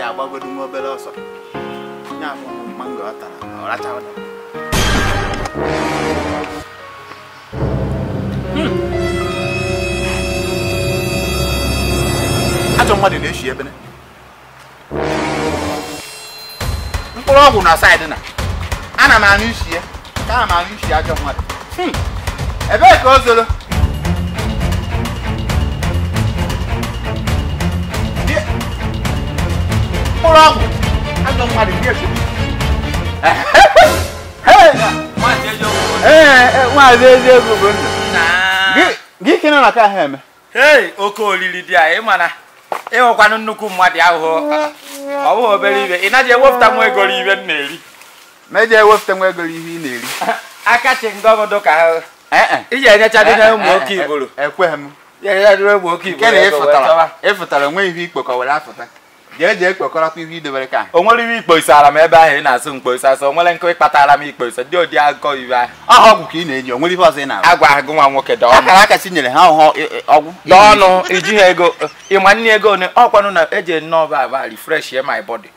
ya agbagodu obere ọsọ ya ụmụ ọ tara ajọ mmadụ na-eshi ebene mkpụrụ ọgwụ na saịdị na ana m anụ isi ya ka ana m anụ ajọ mmadụ ebee ka o zoro fúlọ́ọ̀mù á lọ padà ní èso. wọn àti ẹjẹ gbogbo nù. gịnị nọ na ka ha eme. oke olili dị a ị mana ịhụkwanụ nnukwu mmadụ ahụhụ ọ bụghị obere ibe ị naghị ewepụta nwa ego ihe m na-eri meje ewepụta nwa ego ihe ị na-eri aka chi ndị ọgọdụ ka ha iji enyecha dị na ụmụ oke iburu ekweghị m ya enyecha dị na ụmụ oke iburu ịfụtara ịfụtara nwe ihe ikpe ka ọ were afụta jee jee kpekọrọta ihe idebere ka o nwere iwe ikpoisara m ebe ahụ ị na-asụ mkpoisa so o nwere nkụ ịkpatara m ikpoisa dị ụdị agụkọ iwe ahụ aha ọgwụ ka ị na enye o nwere ife ọzọ ị na agwa agụ nwa nwoke akara aka si nyere ha e, e, ọgwụ ọnụ iji ha ego ịma nne ego one ọkwanụ na eji nnọọ ba aba refresh my body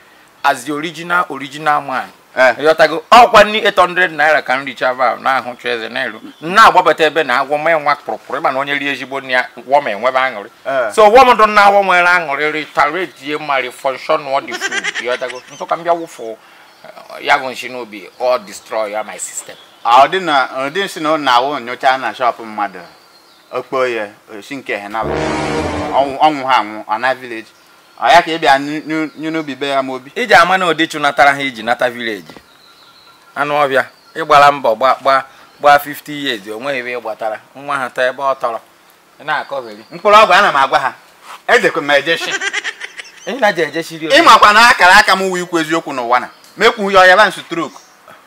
as the original original man ịghọtago ọkwa ndị 800 naira ka nri chava n'ahụ ahụ cheze n'elu na-agbabata ebe na agwọ mee nwa kpụrụkpụrụ ịma na onye rie ezigbo nri ya wọm enwebe aṅụrị so wọm dụ na agwọ nwere aṅụrị ritaretie mari fọnshọn ọ dị fud ịghọtago ntụka mbịa wụfụ ya bụ nshi n'obi ọ destroy ya my system ọ dị na ọ dị nsi na ọ na-awụ nyocha na shọpụ mmadụ okpo ya osi nke henalụ ọnwụ ha anwụ ana village ya ka ị bịa n'ubi be ya ma obi iji ama na odichu natara ha iji nata vileji anụ ọbịa ịgbara mbọ gbaa gbaa 50 years o nweghị ebe ịgbatara nwa ha taa ebe ọ tọrọ na-akọgheri mkpụrụ ọgwụ ana m agwa ha edekwe m ejeshi ịmakwa na akara aka m wụ ikwu eziokwu n'ụwa na mekwu ya ọya ba nsụ trok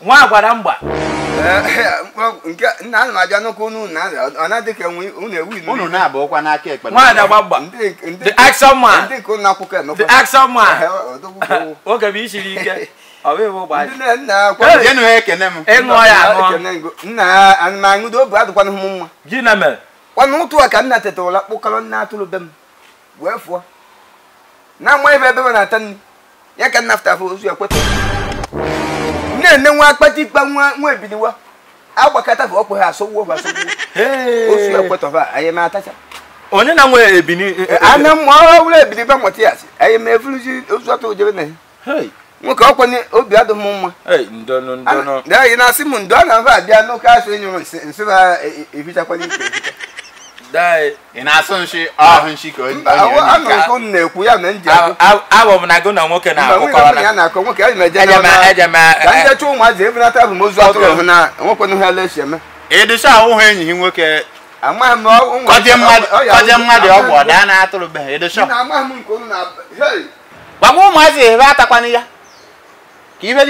nwa agwara mgba ana m abịa n'ụkwụ unu na dịka unu na n'aka ekpe nwaanyị agba mgba the action man the action man oge bụ ike ana na ka nna kpụkọrọ nna atụrụ be m wee fụọ na amaghị ebe ebe m na-ata nri ya ka nna fụtafụ ozu ekwetara na-ene nwa akpata ikpe nwa ebiniwa agbakọta bụ opo ha asọgbuo bụ asọgbuo osu ekwetọba anyị na-atacha onye na nwe ebini e, e, e, ana mma ọhụrụ ebini ba nwata ya anyị ma efuruzi ozu atọ na ya nwoke ọkwa ni obi adịghị m anyị na-asị m ndo a na-aba abịa n'ụka nyụrụ nsị ị na-asụ nshi ah. ahụ nshi ka na-ekwu ya na nji abụ m na gụ na nwoke na-akụkọ ụmụazị ebunata bụ atụrụ hụ na nwekwenụ ha eme ahụhụ enyi nwoke amaghị m kọje mmadụ ọgwụ ọ daa na-atụrụbeghị ịdịcha gbagwa ụmụazị ebe atakwana ya ka ihe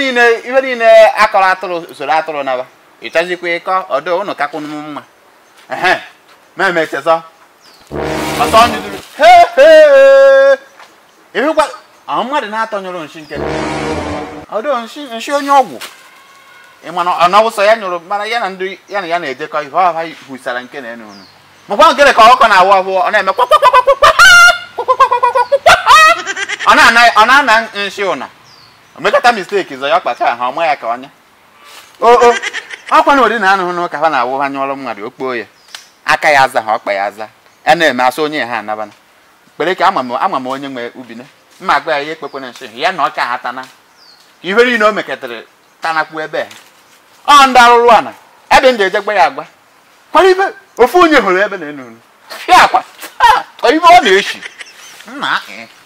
niile akọrọ atụrụ usoro atụrụ naba ịchazikwa ịkọ ọdụ ụnụ mma meme cheza ịhụkwa ahụ mmadụ na-atọ nyụrụ nshi nke ọdụ nshi onye ọgwụ ịmana ọnawụsọ ya nyụrụ mana ya na ndị ya na ya na-ejekọ ihe ọha hụsara nke na enu makwa nkere ka ọkọ na-awụ ahụ ọ na-eme ọ na-ana nshi ụna omekata misteki zọ ya kpacha ha ọma ya ka ọnya oo akwa na ori na anụhụ n'ụka ha na-awụ ha nyụọrọ mmadụ okpoo ya aka ya aza ha ọkpa ya aza a e na-eme asụ onye ha anabana kpere ka ama m onye nwe na mma agba ya ihe ekpekwere nshi ya na ọka ha tana ife niile o mekatara tanakwu ebe ọ ndị arụrụ ana ebe ndị ejegba ya agba kwara ibe ofu onye hụrụ ebe na-enuru ya akwa ah, ibe ọ na-echi nna